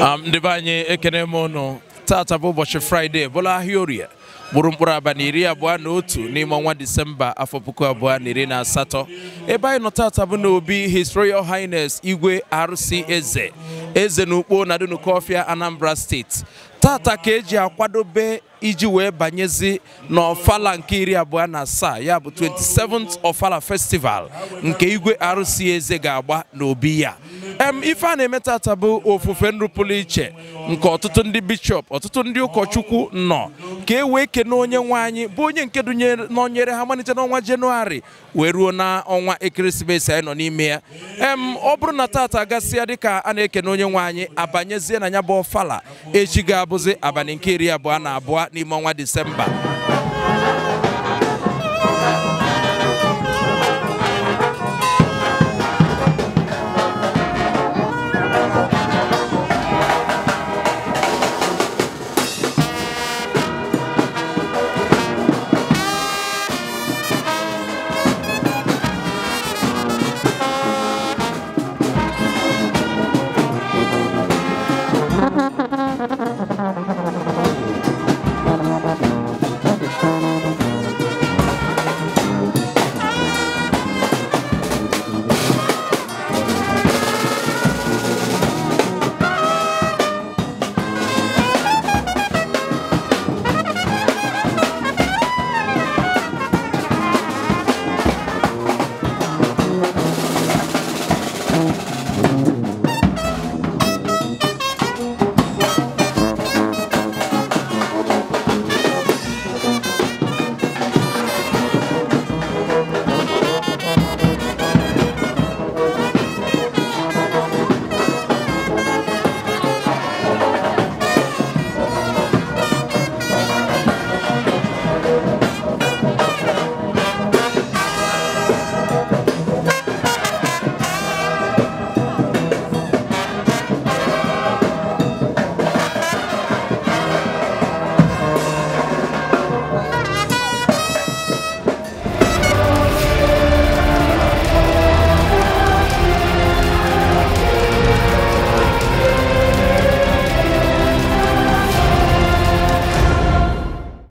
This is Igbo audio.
ndị be anyị ekene m ụnụ tata bụ ụbọchị fraịde bụrụ ahịa orie bụrụ mkpụrụ abalị iri abụọ na otu n'ime ọnwa disemba afọ puku abụọ na iri na asatọ ebe anyị nọ tata bụ n'obi his royal highness igwe arụsị eze eze n'ukpo na dunukofia anambra steeti tata ka eji akwadobe iji wee banyezi n'ọfala nke iri abụọ na asaa ya bụ 27th ofala festival nke igwe arụsị eze ga-agba n'obi ya ife a na-eme tata bụ ofufe nrụpụrụ iche nke ọtụtụ ndị bishọp ọtụtụ ndị ụkọchukwu nọ ka e wee kene onye nwe anyị bụ onye nke nọnyere ha malite n'ọnwa jenụwarị wee ruo na ọnwa ekeresimesi anyị nọ n'ime ya em ọ bụrụ na tata gasịa dịka a na-ekene onye nwe anyị abanyezie na ya bụ ọfala echi ga-abụzi abalị nke iri abụọ na abụọ n'ime ọnwa disemba